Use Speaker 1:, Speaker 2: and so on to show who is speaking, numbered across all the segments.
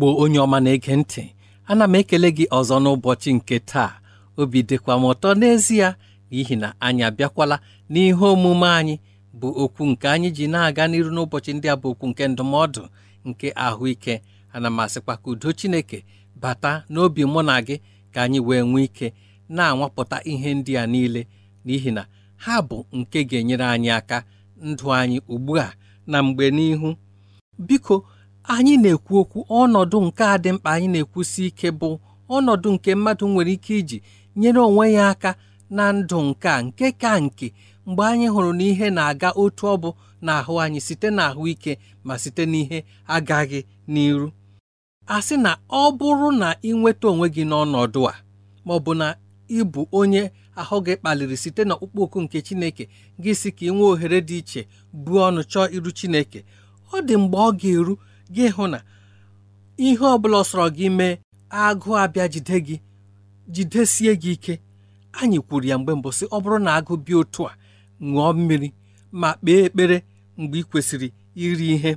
Speaker 1: igbo onye ọma na-ege ntị ana m ekele gị ọzọ n'ụbọchị nke taa obi dịkwa m ụtọ n'ezie n'ihi na anyị abịakwala n'ihe omume anyị bụ okwu nke anyị ji na-aga n'iru n'ụbọchị ndị a bụ okwu nke ndụmọdụ nke ahụike ana m asịkwa ka udo chineke bata n'obi mụ na gị ka anyị wee nwee ike na-anwapụta ihe ndị a niile n'ihi na ha bụ nke ga-enyere anyị aka ndụ anyị ugbu a na mgbe n'ihu biko anyị na-ekwu okwu ọnọdụ nke a dị mkpa anyị na-ekwusi ike bụ ọnọdụ nke mmadụ nwere ike iji nyere onwe ya aka na ndụ nke a nke ka nke mgbe anyị hụrụ na ihe na-aga otu ọ bụ ahụ anyị site ahụike ma site n'ihe agaghị n'iru asị na ọ bụrụ na ị nweta onwe gị n'ọnọdụ a ma ọ bụ na ị bụ onye ahụ gị kpaliri site n'ọkpụkpọ oku nke Chineke gị si ka ị nwee ohere dị iche buo ọnụ chọọ iru Chineke ọ dị mgbe ọ ga-eru gị hụ na ihe ọbụla sọrọ gị mee agụụ abịa jide gị jidesie gị ike anyị kwuru ya mgbe mbụ sị ọ bụrụ na agụụ bịa otu a ṅụọ mmiri ma kpee ekpere mgbe ị kwesịrị iri ihe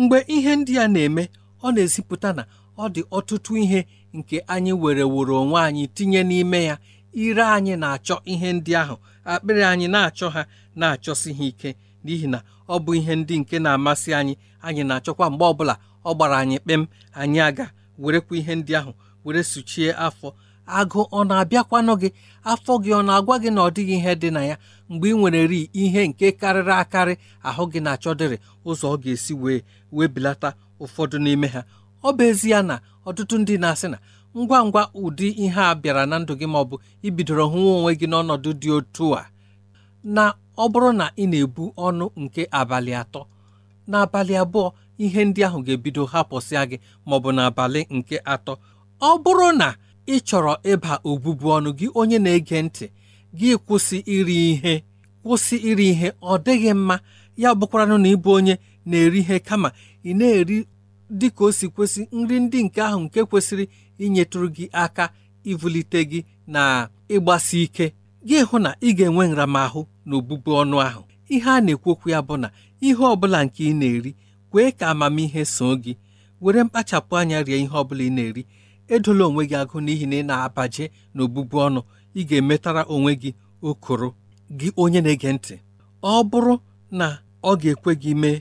Speaker 1: mgbe ihe ndị a na-eme ọ na-ezipụta na ọ dị ọtụtụ ihe nke anyị were woro onwe anyị tinye n'ime ya ire anyị na-achọ ihe ndị ahụ akpịrị anyị na-achọ ha na-achọsi ha ike n'ihi na ọ bụ ihe ndị nke na-amasị anyị anyị na-achọkwa mgbe ọbụla ọ gbara anyị kpem anyị aga werekwa ihe ndị ahụ were suchie afọ agụ ọ na-abịakwanụ gị afọ gị ọ na-agwa gị na ọ dịghị ihe dị na ya mgbe ị nwere ri ihe nke karịrị akarị ahụ gị na-achọdịrị ụzọ ọ ga-esi wee wee belata ụfọdụ n'ime ha ọ bụ ezie na ọtụtụ ndị na-asị na ngwa ngwa ụdị ihe a bịara na ndụ gị ma ọ bụ ibidoro hụwa onwe gị n'ọnọdụ dị otu a na ọ bụrụ na ị na-ebu ọnụ nke abalị atọ n'abalị abụọ ihe ndị ahụ ga-ebido hapụsịa gị maọbụ n'abalị nke atọ ọ bụrụ na ị chọrọ ịba obubu ọnụ gị onye na-ege ntị gị kwụsị iri ihe kwụsị iri ihe ọ dịghị mma ya bụkwaranụ na ịbụ onye na-eri ihe kama ị na-eri dị ka o si kwesị nri ndị nke ahụ nke kwesịrị inyetụrụ gị aka ivulite gị na ịgbasi ike gị hụ na ị ga-enwe nramahụ na obụbu ọnụ ahụ ihe a na-ekwokwu ya bụ na ihe ọbụla nke ị na-eri kwee ka amamihe so gị were mkpachapụ anya rie ihe ọbụla ị na-eri edola onwe gị agụ n'ihi na ị na-abaje na obụbu ọnụ ị ga-emetara onwe gị okoro gị onye na-ege ntị ọ bụrụ na ọ ga-ekwe gị mee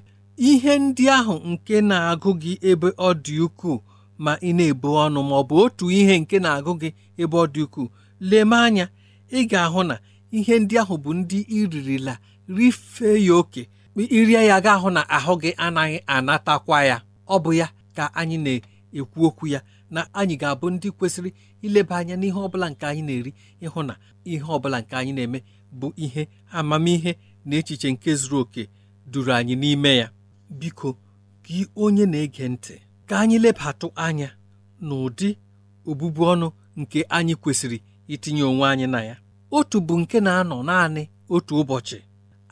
Speaker 1: ihe ndị ahụ nke na-agụ gị ebe ọ dị ukwuu ma ị na-ebu ọnụ ma ọ bụ otu ihe nke na-agụ gị ebe ọ dị ukwuu leme anya ị ga-ahụ na ihe ndị ahụ bụ ndị iririla rifee ya oke irie ya ga-ahụ na ahụ gị anaghị anatakwa ya ọ bụ ya ka anyị na-ekwu okwu ya na anyị ga-abụ ndị kwesịrị ileba anya n'ihe ọbụla nke anyị na-eri ịhụ na ihe ọbụla nke anyị na-eme bụ ihe amamihe na echiche nke zuru oke duru anyị n'ime ya biko gị onye na-ege ntị ka anyị lebatụ anya n'ụdị obụbu ọnụ nke anyị kwesịrị itinye onwe anyị na ya otu bụ nke na-anọ naanị otu ụbọchị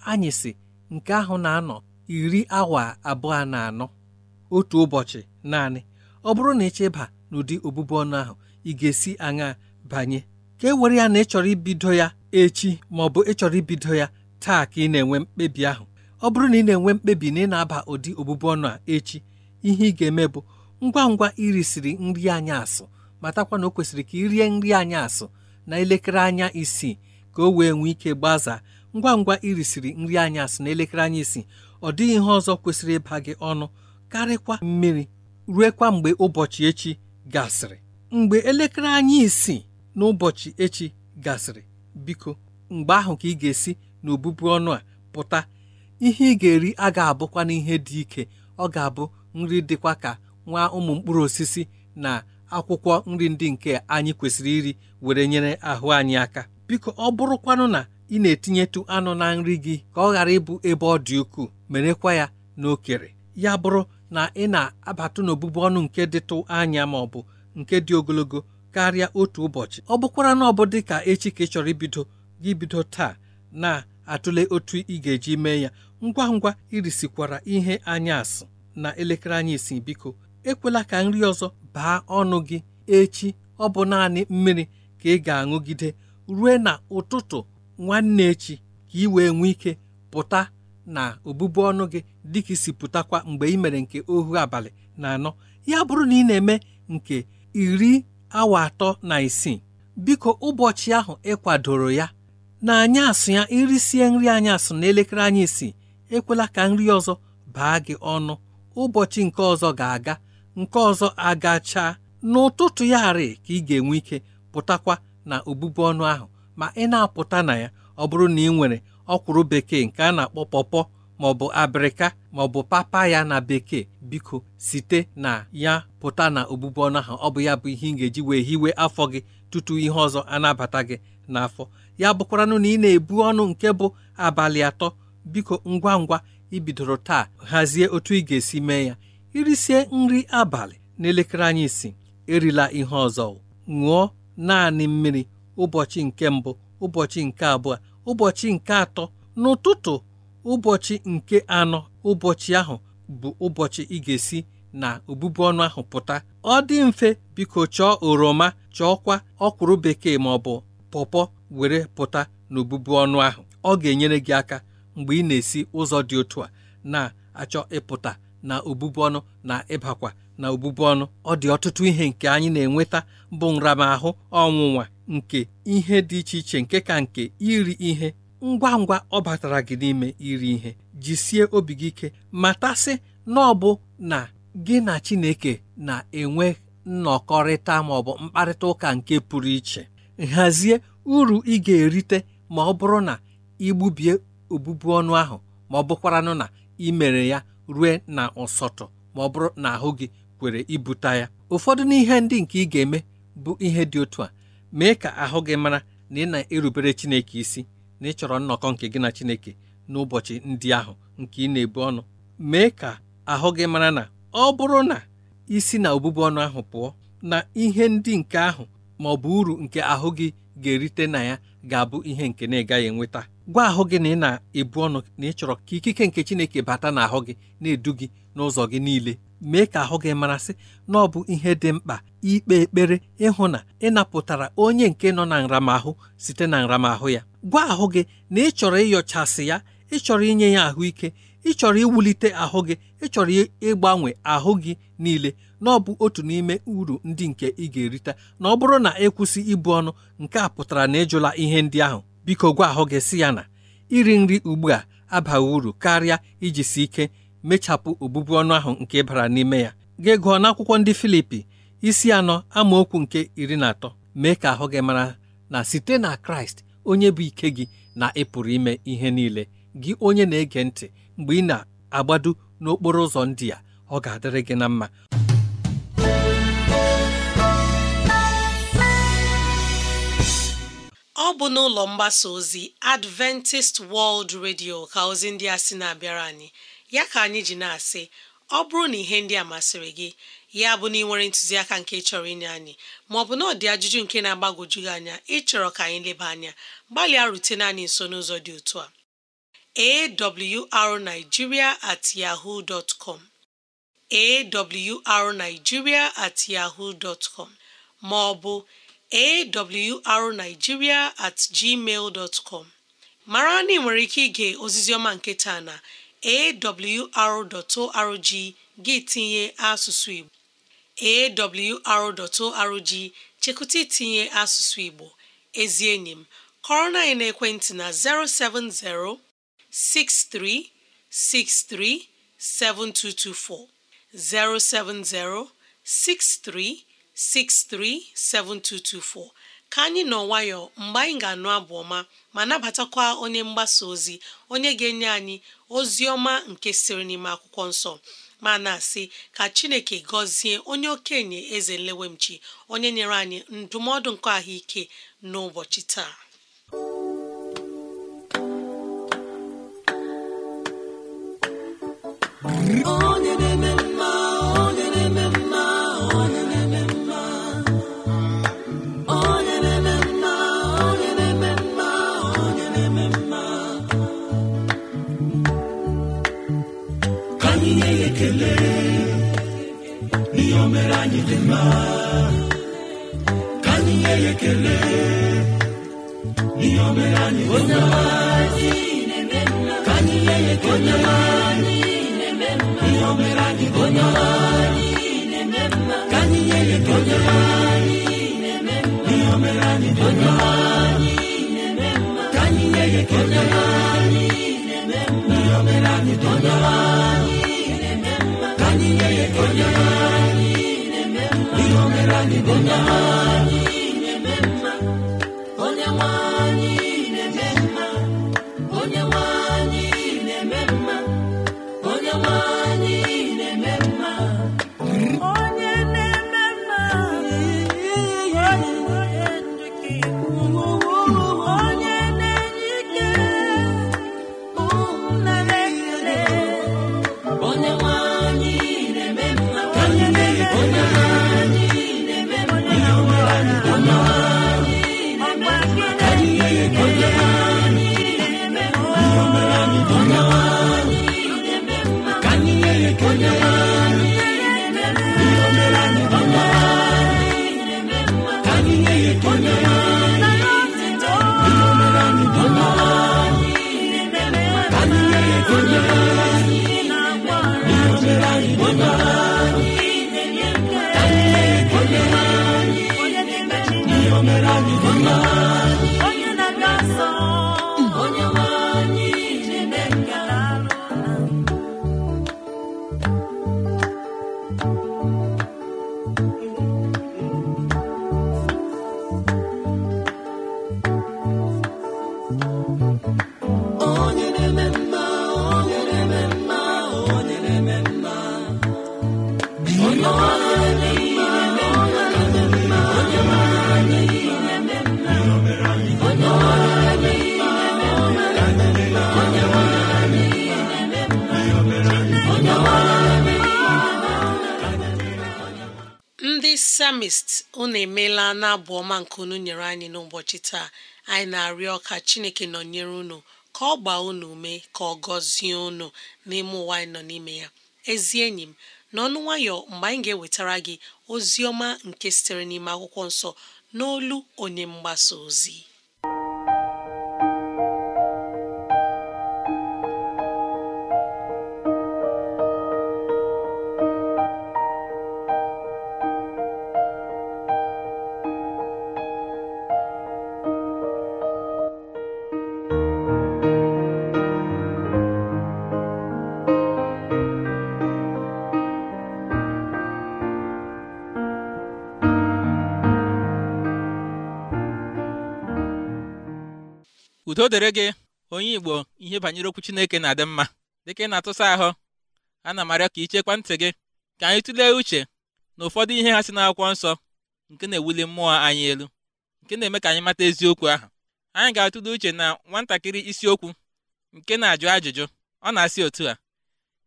Speaker 1: anyị si nke ahụ na-anọ iri awa abụọ na anọ otu ụbọchị naanị ọ bụrụ na ịchịba n'ụdị ọbụbụ ọnụ ahụ ị ga-esi aṅa banye ka e were ya na ịchọrọ ibido ya echi ma ọ bụ ịchọrọ ibido ya taa ka ị na-enwe mkpebi ahụ ọ bụrụ na ị na-enwe mkpebi na ị na-aba ụdị ọbụbụ ọnụ a echi ihe ị ga-eme bụ ngwa ngwa irisiri nri anyị asụ matakwa na o kwesịrị ka ị rie nri anyị asụ na elekere anya isii ka o wee nwee ike gbaza ngwa ngwa irisiri nri anya na elekere anya isii ọ dịghị ihe ọzọ kwesịrị ịba gị ọnụ karịkwa mmiri ruekwa mgbe ụbọchị echi gasịrị mgbe elekere anya isii ụbọchị echi gasịrị biko mgbe ahụ ka ị ga-esi n'obubu ọnụ a pụta ihe ị ga-eri a ga-abụkwa n'ihe dị ike ọ ga-abụ nri dịkwa ka nwa ụmụ mkpụrụ osisi na akwụkwọ nri ndị nke anyị kwesịrị iri were nyere ahụ anyị aka biko ọ bụrụkwanụ na ị na-etinyetụ anụ na nri gị ka ọ ghara ịbụ ebe ọ dị ukwuu merekwa ya n'okere ya bụrụ na ị na-abatụ n'obụbụ ọnụ nke dịtụ anya ma ọ bụ nke dị ogologo karịa otu ụbọchị ọ bụkwara na ọ bụ dị ka echi ka ị chọrọ ibido gị bido taa na-atụle otu ị ga-eji mee ya ngwa ngwa irisikwara ihe anyasị na elekere anyị isii biko ekwela ka nri ọzọ baa ọnụ gị echi ọ bụ naanị mmiri ka ị ga-aṅụgide rue na ụtụtụ nwanne echi ka ị wee nwee ike pụta na obụbu ọnụ gị dịka isi pụtakwa mgbe ị mere nke ohu abalị na anọ ya bụrụ na ị na-eme nke iri awa atọ na isii biko ụbọchị ahụ ị kwadoro ya na asụ ya irisie nri anyasụ na elekere anyị isii ekwela ka nri ọzọ baa gị ọnụ ụbọchị nke ọzọ ga-aga nke ọzọ agacha n'ụtụtụ ya arị ka ị ga-enwe ike pụtakwa na obubu ọnụ ahụ ma ị na-apụta na ya ọ bụrụ na ị nwere ọkwụrụ bekee nke a na-akpọ pọpọ maọbụ abịrịka maọbụ papa ya na bekee biko site na ya pụta na obụbụ ọnụ ahụ ọ bụ ya bụ ihe ị ga-eji wee hiwe afọ gị tutu ihe ọzọ anabata gị n'afọ ya bụkwaranụ na ị na-ebu ọnụ nke bụ abalị atọ biko ngwa ngwa ibidoro taa hazie otu ị ga-esi mee ya irisie nri abalị n'elekere anyị si erila ihe ọzọ ṅụọ naanị mmiri ụbọchị nke mbụ ụbọchị nke abụọ ụbọchị nke atọ n'ụtụtụ ụbọchị nke anọ ụbọchị ahụ bụ ụbọchị ị ga-esi na obubu ọnụ ahụ pụta ọ dị mfe biko chọọ oroma chọọkwa ọkwụrụ bekee ma ọ bụ pọpọ were pụta n'obubu ọnụ ahụ ọ ga-enyere gị aka mgbe ị na-esi ụzọ dị otu a na-achọ ịpụta na obubu ọnụ na ịbakwa na obubu ọnụ ọ dị ọtụtụ ihe nke anyị na-enweta bụ nramahụ ọnwụnwa nke ihe dị iche iche nke ka nke iri ihe ngwa ngwa ọ batara gị n'ime iri ihe jisie obi gị ike matasị na ọ bụ na gị na Chineke na-enwe nnọkọrịta ma ọ bụ mkparịta ụka nke pụrụ iche hazie uru ị ga-erite ma ọ bụrụ na igbubie obubu ọnụ ahụ ma ọ bụkwaranụ na ị mere ya rue na ụsọtụ ma ọ bụrụ na ahụ gị kwere ibute ya ụfọdụ n'ihe ndị nke ị ga-eme bụ ihe dị otu a mee ka ahụ gị mara na ị na-erubere Chineke isi na ịchọrọ nnọkọ nke gị na Chineke n'ụbọchị ndị ahụ nke ị na-ebu ọnụ mee ka ahụ gị mara na ọ bụrụ na isi na obụbu ọnụ ahụ pụọ na ihe ndị nke ahụ ma ọ bụ uru nke ahụ gị ga-erite na ya ga-abụ ihe nke na-ịgaghị enweta gwa ahụ gị na ị na-ebu ọnụ na ị chọrọ ka ikike nke Chineke bata n'ahụ gị na-edu gị n'ụzọ gị niile mee ka ahụ gị marasị na ọ bụ ihe dị mkpa ikpe ekpere ịhụ na ị napụtara onye nke nọ na nramahụ site na nramahụ ya gwa ahụ gị na ị chọrọ ịyọchasị ya ị chọrọ inye ya ahụike ị chọrọ iwulite ahụ gị ị chọrọ ịgbanwe ahụ gị niile na ọ bụ otu n'ime uru ndị nke ị ga-erite na ọ bụrụ na ịkwụsị e ibu ọnụ nke a pụtara na ịjụla ihe ndị ahụ biko gwa ahụ gị si ya na iri nri ugbu a abaghị uru karịa iji si ike mechapụ obụbu ọnụ ahụ nke bara n'ime ya gị gụọ n'akwụkwọ ndị Filipi isi anọ amaokwu nke iri na atọ mee ka ahụ gị mara na site na Kraịst onye bụ ike gị na ịpụrụ ime ihe niile gị onye na-ege ntị mgbe ị na-agbado n'okporo ụzọ ndị a ọ ga-adịrị gị na mma
Speaker 2: ọ bụ n'ụlọ mgbasa ozi Adventist World Radio ka ozi ndị a sị na-abịara anyị ya ka anyị ji na-asị ọ bụrụ na ihe ndị a masịrị gị ya bụ na ị nwere ntụziaka nke chọrọ inye anyị maọbụ na ọdị ajụjụ nke na-agbagwoju gị anya ịchọrọ ka anyị leba anya gbalịa rutena anyị nso n'ụzọ dị otu a awrnigeria at yahoo dot com awrnigeria at yahoo dot com maọbụ awrnigeria at gmail dot com mara na ị nwere ike ige ozizioma nke taa na awr.org gị tinye asụsụ Igbo awr.org chekụta itinye asụsụ Igbo ezi enyi m kọrọ na ekwentị na 070 6363 7224 070 63 637224 ka anyị nọ nwayọọ mgbe anyị ga-anụ abụ ọma ma nabatakwa onye mgbasa ozi onye ga-enye anyị ozi ọma nke siri n'ime akwụkwọ nsọ ma na-asị ka Chineke gọzie onye okenye eze nlewemchi onye nyere anyị ndụmọdụ nke ahụike n'ụbọchị taa
Speaker 3: oh.
Speaker 4: ekele n'ihe anyị dị mma onye anyị na-eme ihe anyị bụ onye anyị
Speaker 2: abụ ọma nke unu nyere anyị n'ụbọchị taa anyị na-arịọ ka chineke nọnyere unu ka ọ gbaa unu ume ka ọ gọzie unu n'ime ụwa anyị nọ n'ime ya ezi enyi m n'ọnụ nwayọ mgbe anyị ga-ewetara gị ozi ọma nke sitere n'ime akwụkwọ nsọ n'olu onye mgbasa ozi
Speaker 3: udo dere gị onye igbo ihe banyere okwu chineke na-adị mma dịka ị na-atụsa ahụ ana m arịọ ka ichekwa ntị gị ka anyị tụlee uche na ụfọdụ ihe ha si n'akwụkwọ nsọ nke na-ewuli mmụọ anyị elu nke na-eme ka anyị mata eziokwu ahụ anyị ga-atụle uche na nwatakịrị isiokwu nke na-ajụ ajụjụ ọ na-asị otu a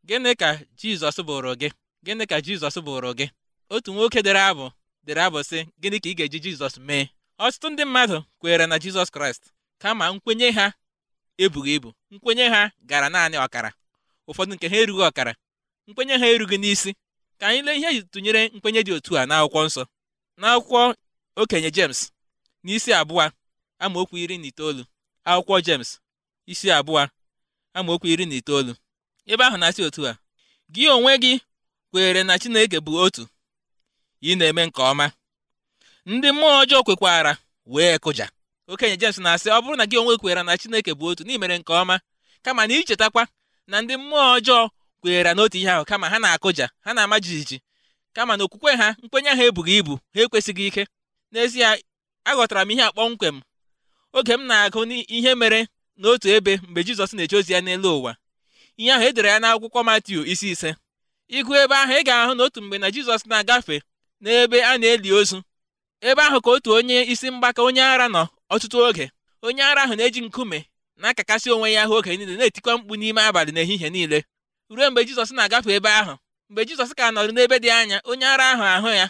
Speaker 3: gịnị ka jizọs bụrụ gị gịnị ka jizọs bụrụ gị otu nwoke dere abụ dere abụ si gịnị ka ị ga-eji jizọs mee ọtụtụ ndị mmadụ kwere na jizọs kraịst kama nkwenye ha ebughị ibu nkwenye ha gara naanị ọkara ụfọdụ nke ha erughị ọkara nkwenye ha erughị n'isi ka anyị lee ihe e tụnyere nkwenye dị otu a n'akwụkwọ nsọ n'akwụkwọ okenye James n'isi abụọ amaokwu iri na itoolu akwụkwọ jems isi abụọ amaokwu iri na itoolu ebe ahụ na-asị otu a gị onwe gị kweere na Chineke bụ otu ị na-eme nke ọma ndị mmụọ ọjọọ kwekwara wee kụja okenye jems na-asị ọ bụrụ na gị onwe kweere na Chineke bụ otu na mere nke ọma kama na ichetakwa na ndị mmụọ ọjọọ kweere n'otu ihe ahụ kama ha na-akụja ha na-ama jijiji kama na okwukwe ha nkwenye ha ebughị ibu ha ekwesịghị ike n'ezie aghọtara m ihe akpọmkwem oge m na-agụ ihe mere n'otu ebe mgbe Jizọs na-eje ozi ya n'elu ụwa ihe ahụ edere ya n'akwụkwọ Matiu isi ise ịgụ ebe ahụ ị ga-ahụ n'otu mgbe na Jizọs na-agafe n'ebe a na-eli ozu ebe ahụ ka otu onye isi mgbaka onye ara nọ ọtụtụ oge onye ara ahụ na-eji nkume na-akakasị onwe ya ahụ oge niile na-etikwa mkpu n'ime abalị ehihie niile ruo mgbe Jizọs na-agafe ebe ahụ mgbe Jizọs ka nọrọ n'ebe dị anya onye ara ahụ ahụ ya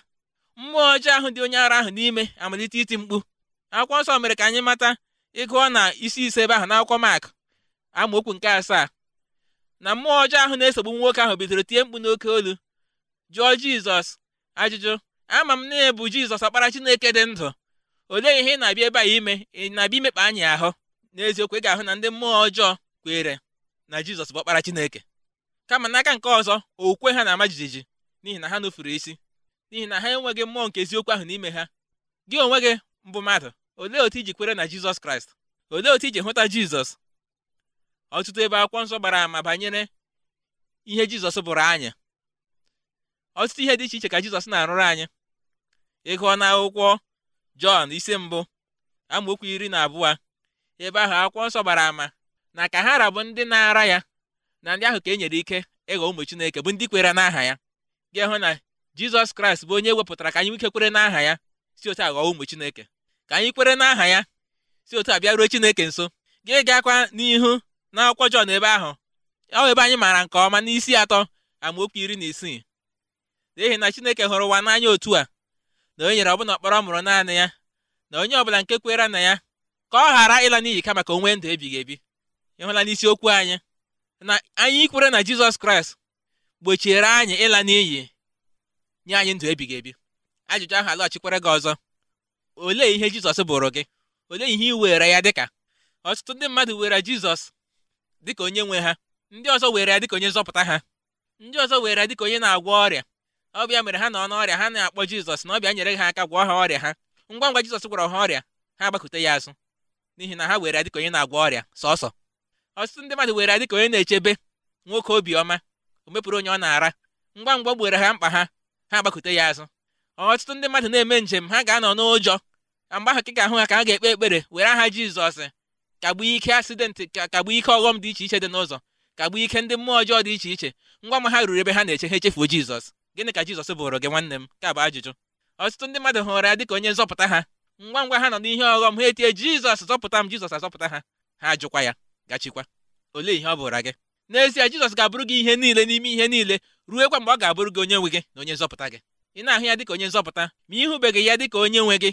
Speaker 3: mmụọ ọjọọ ahụ dị onye ara ahụ n'ime amalite iti mkpu akwụkwọ nsọ mere ka anyị mata ịgụọ na isi ise ebe ahụ n'akwụkwọ Mak amaokwu nke asaa na mmụọ ọjọọ ahụ na-esogbu nwoke ahụ bidoro tie mkpu n'oke olu jụọ Jizọs ajụjụ ama m na bụ Jizọs ọkpara Chineke dị ndụ olee ihe ị na-abịa ebe a ime ị na-abịa imekpa anyị ahụ n'eziokwu ị ga-ahụ na ndị mmụọ ọjọọ kwere na jizọs bụ ọkpara chineke kama n'aka nke ọzọ okwukwe ha na-ama jijiji n'ihi na ha nụfuru isi n'ihi na ha enweghị mmụọ nke eziokwu ahụ n'ime ha gị onwe gị mbụ mmadụ olee otu iji kwere na jizọs kraịst olee otu iji hụta jizọs ọtụtụ ebe akwụkwọ nsọ gbara ama banyere ihe jizọs bụrụ anyị ọtụtụ ihe dị iche iche ka jizọs na-arụrụ anyị ịgụọ na akwụkwọ jọn isi mbụ amaokwu iri na abụọ ebe ahụ akwụkwọ nsọ gbara ama na ka ha rabụ ndị na-ara ya na ndị ahụ ka e nyere ike ịghọ ụmụ chineke bụ ndị kwere n'aha ya gị hụ na jizọs kraịst bụ onye wepụtara ka anyị nwike kwere n'aha ya si otu a ghọọ ụmụ chineke ka anyị kwere n'aha ya si otu a ruo chineke nso gị gakwa n'ihu na akwụkwọ jọn ebe ahụ ọ ebe anyị maara nke ọma n'isi atọ amaokwu iri na isii n'ihi na chineke hụrụ ụwa n'anya otu a na o nyere ọbụna ọkpọrọ mụrụ naanị ya na onye ọbụla nke kwere na ya ka ọ ghara ịla n'iyi ka maka onwe ndụ ebighị ebi ịhụla okwu anyị na anyị kwere na jizọs kraịst gbochiere anyị ịla n'iyi nye anyị ndụ ebighị ebi ajụjụ ahụ alọghachikwere gị ọzọ olee ihe jizọs bụrụ gị olee ihe ị were ya dịka ọtụtụ ndị mmadụ were jizọs dịka onye nwe ha ndị ọzọ were ya dịka onye nzọpụta ha ndị ọzọ were ya dịka onye na-agwọ ọrịa ọbịa mere ha nọ n'ọrịa ha na-akpọ jizọs na ọbịa nyere ha aka gwọọ ha ọrịa ha ngwa ngwa jizọs gwọrọ ha ọrịa ha gbakute ya azụ n'ihi na ha were ya dịka onye na-agwọ ọrịa sọsọ ọtụtụ ndị mmadụ were ya dịka onye na-echebe nwoke obiọma o mepụrụ onye ọ na-ara ngwa ngwa gbere ha mkpa ha ha agbakute ya azụ ọtụtụ ndị mmadụ na-eme njem ha ga-anọ n'ụjọ mgbe ahụ ka ahụ ha ka ha ga-ekpe ekpere were aha jizọs kagbuo ike asidentị ike ọghọm dị iche iche dị n'ụzọ ike ndị mmụọ ọjọọ dị iche iche ngwa ma ha ruru ebe ha na-eche ha echefuo jizọs gịnị ka jizọs bụrụ gị nwanne m ka bụ ajụjụ ọtụtụ ndị mmadụ hụrụ ya dịka onye nzọpụta ha ngwa ngwa ha nọ n'ihe ọghọm ha etie jizọs zọpụta m jizọs azọpụta ha ha ajụkwa ya gachikwa olee ihe ọ bụrụ gị n'ezie jizọs ga-abụrụ gị ihe niile n'ime ihe niile ruekwa mgbe ọ ga-abụrụ gị onye nwe gị na onye nzọpụta gị ị na-ahụ ya ka onye nzọpụta ma ịhụbeghị ya dị ka onye nwe gị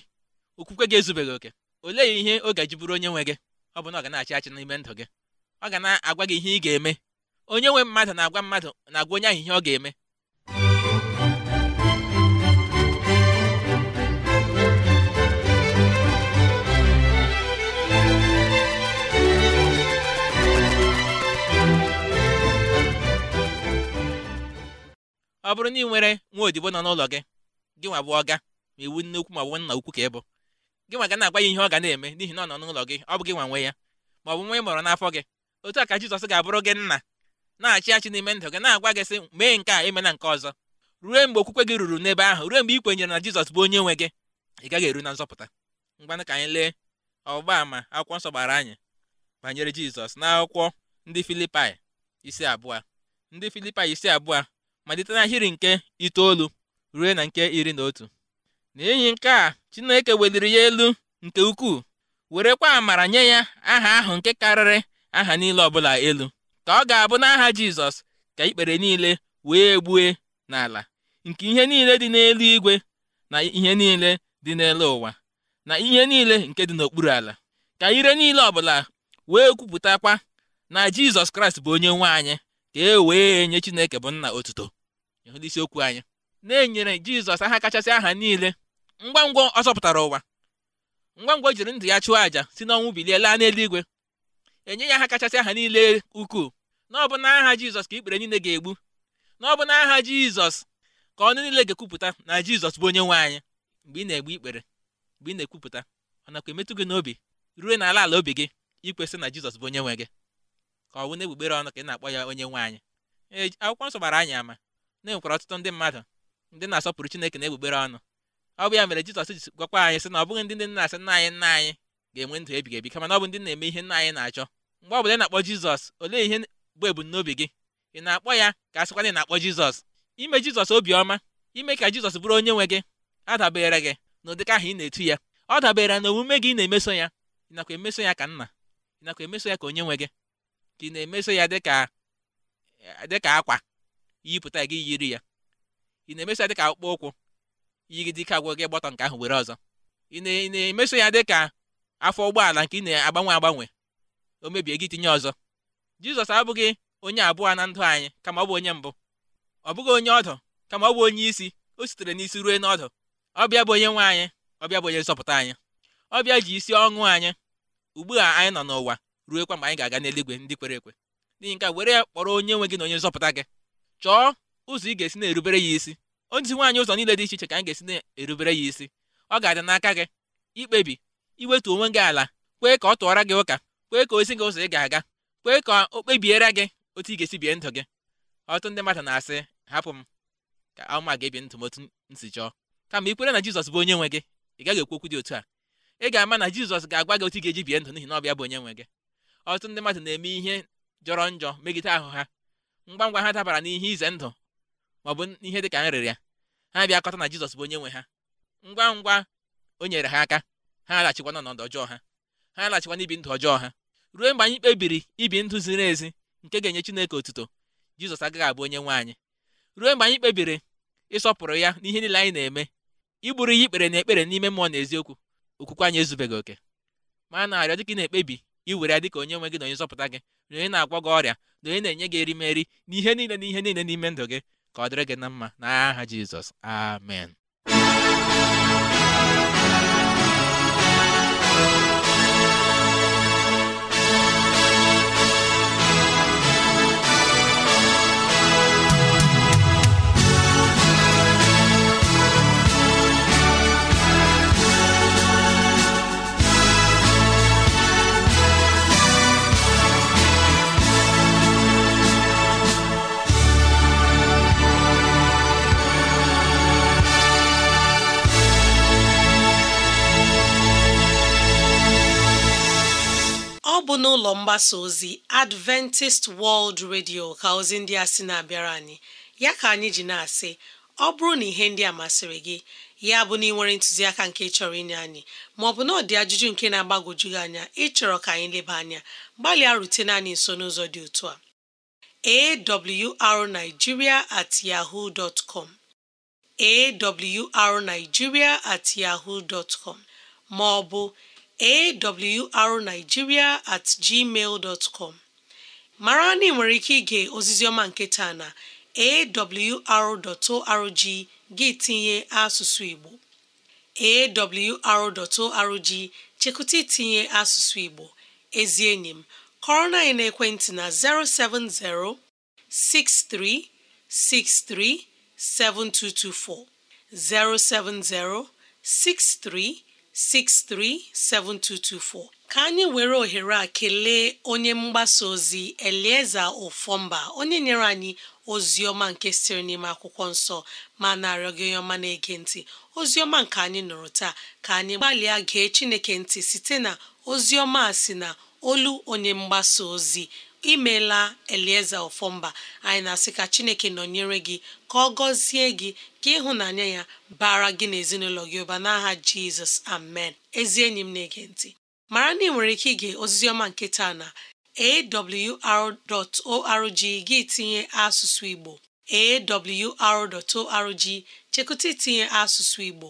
Speaker 3: okwukwe gị ezubeghị oke olee ihe ọ ga-eji bụrụ onye nwe gị ọ bụ na ọ ga achị achị n'ime ndụ gị ọ ga na-agwa gị ihe ị ga-eme onye nwe mmadụ na-agwa mmadụ na-agwa onye ahụ ihe ọ ga-eme ọ bụrụ na ị nwere nwa odibo nọ n'ụlọ gị gị nwa bụ ọga ma iwu nne ukwu ma ọ bụ nna ukwu ka ị bụ gị nwa ga na-agwa ya ihe ọ ga na-eme n'ihi na ọ nọ n'ụlọ gị ọ bụ gị nwa nwe ya ma ọ bụ nwa ị mụrụ n'afọ gị otu a ka Jizọs ga-abụrụ gị nna na-achị achị n'ime ndụ gị na-agwa gị sị mee nke a emena nke ọzọ ruo mgbe okwukwe gị ruru n'ebe ahụ ruo mgbe ị kwenyere na Jizọs bụ onye nwe gị ị gaghị eru na nzọpụta mgbanụ ka anyị lee ọgba ama akwụkwọ nsọ gbara anyị banyere Jizọs n'akwụkwọ ndị Filipaị isi abụọ ndị Filipaị isi abụọ malite n'ahịrị nke itoolu ruo na nke iri na otu n'enyi nke a Chineke weliri ya elu nke ukwuu werekwa amara nye ya aha ahụ nke karịrị aha niile ọbụla elu ka ọ ga-abụ n'aha Jizọs ka ikpere niile wee gbue n'ala nke ihe niile dị n'elu igwe na ihe niile dị n'elu ụwa na ihe niile nke dị n'okpuru ala ka ire niile ọbụla wee kwupụtakwa na Jizọs Kraịst bụ onye nwe anyị ka e wee nye Chineke bụ nna otuto ndị isiokwu anyị na-enyere jizọs aha kachasị aha niile ngwa ngwa ọ ụwa ngwa ngwa jiri ndụ ya chụọ àjà si n'ọnwụ bilie laa n'eluigwe enye ya aha kachasị aha niile ukwuu na ọ bụ n'aha jizọs ka ikpere niile ga-egbu na ọ n'aha jizọs ka ọnụ niile ga-ekwupụta na jizọs bụ onye nwe anyị mgbe ị na-egbu ikpere mgbe ị na-ekwupụta ọ nakwa emetụ gị n'obi ruo n'ala ala obi gị ikwesị na jizọs bụ onye nwe gị ka ọ bụ na egbugbere ọnụ ka ị na-akpọ ya onye nwe anyị akwụkwọ nsọ gbara anyị ama na-enwekwara ọtụtụ ndị mmadụ ndị na-asọpụrụ chineke na egbugbere ọnụ ọ bụ ya mere jizọs ji gwakwa anyị sị na ọ bụghị ndị ndị na-asị nna anyị nna anyị ga-enwe ndụ ebighị ebi kama na ọ bụ ndị na-eme ihe nna anyị na-achọ mgbe ọ bụ ị na-akpọ jizọs olee ihe bụ ebumnobi gị ị na-akpọ ya ka a sịkwa na ị na-akpọ jizọs ime jizọs obiọma ime ka jizọs bụrụ onye nwe gị adabere gị na ụdịka ahụ ị na-etu ya ọ dabere na omume gị na-emeso ya ịnakwa emeso ya ka nna ị nakwa emeso ya ka onye nwe gị ka ị na-emeso ya dịka akwa yipụta gị yiri ya ị na-emeso ya dịka akpụkpọ ụkwụ yiri dike agwụ gị gbọtọ nke ahụ were ọzọ ị na-emeso ya dịka afọ ụgbọala nke ị na-agbanwe agbanwe o mebie gị tinye ọzọ jizọs abụghị onye abụọ na ndụ anyị kama ọ bụ onye mbụ ọ bụghị onye ọdụ kama ọ bụ onye isi o sitere n'isi ruo n'ọdụ. ọbịa bụ onye nwe anyị ọbịa bụ onye nzọpụta anyị ọbịa ji isi ọṅụ anyị ugbu a anyị nọ n'ụwa ruekwa mgbe anyị ga-aga n'eluigwe ndị kwere ekwe n'ihi nke were ya kpọrọ onye nwe gị na onye nzọpụta gị chọọ ụzọ ị ga-esi na-erubere ya isi ozi nwaanyị ụzọ niile dị iche iche ka anyị ga-esi na-erubere ya isi ọ ga-adị n'aka gị ikpebi iwetu onwe gị ala kwee ka ọ tụọra gị ụka kwee ka ozi gị ụzọ ị ga-aga kwee ka o kpebiere gị otu ị ga-esi bie ndụ gị ọtụtụ ndị mmadụ na-asị hapụ m ka ama ga-ebi ndụ m otu m chọọ kama ikwere kwere na jizọs bụ onye nwe gị ị gaghị ekwu okwu dị otu a ị ga-ama na jizọs ga-agwa gị otu ị ga-eji bie ndụ n'ihi na ọ bụ onye nwe gị ọtụtụ ndị mmadụ na-eme ihe jọrọ njọ megide ahụ ha ngwa ngwa ha dabara n'ihe ize ndụ maọbụ ihe dị ka nrịrịa ha bịakọta na jizọs bụ onye nwe ha ngwa ngwa o nyere ha aka ha alaghachikwa n'ọnọdụ ọjọọ ha ha alaghachikwa n'ibi ndụ ọjọọ ha ruo mgbe anyị kpebiri ibi ndụ ziri ezi nke ga-enye chineke otuto jizọs agaghị abụ onye nwe anyị ruo mgbe anyị kpebiri ịsọpụrụ ya n'ihe niile anyị na-eme igburu ya ikpere na ekpere n'ime mmụọ na eziokwu okwukwe anyị ezubeghị oke ma na-arịọ dịka ị na-ekpebi iwere ya dịka onye nwe gị na onye nzọpụta gị na na-agwọ gị ọrịa na onye na-enye gị erimeri na ihe niile na ihe niile n'ime ndụ gị ka ọ dịrị gị na mma n'aha Jizọs amen
Speaker 2: ụlọ mgbasa ozi Adventist World Radio ka ozi ndị a sị na-abịara anyị ya ka anyị ji na-asị ọ bụrụ na ihe ndị a masịrị gị ya bụ na ị nwere ntụziaka nke chọrọ inye anyị ma maọbụ na ọ dị ajụjụ nke na agbagoju gị anya ịchọrọ ka anyị leba anya gbalịa rutene anyị nso n'ụzọ dị otu a awrnigeria at yahoo dot com awrnigeria at yahoo dot maọbụ awrnigeria at gmail com mara na ị nwere ike ige oziziọma nke taa na awr.org gị tinye asụsụ Igbo awr.org chekụta itinye asụsụ Igbo ezi enyi m kọrọ na anyị n'ekwentị na 070 6363 7224 070 63 637224 ka anyị were ohere a kelee onye mgbasa ozi Elieza Ofọmba onye nyere anyị ozi ọma nke siri n'ime akwụkwọ nsọ ma na gị onye ọma na-ege ntị ozi ọma nke anyị nụrụ taa ka anyị gbalịa gee Chineke ntị site na ozi ọma a si na olu onye mgbasa ozi imela elieze ọfọmba anyị na-asị ka chineke nọnyere gị ka ọ gọzie gị ka ịhụnanya ya bara gị na ezinụlọ gị ụba n'aha jizọs amen ezi enyi m na-ege ntị mara na ị nwere ike ige ozizioma ọma nke taa na awr.org gị tinye asụsụ igbo awr.org chekụta itinye asụsụ igbo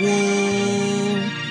Speaker 2: woo!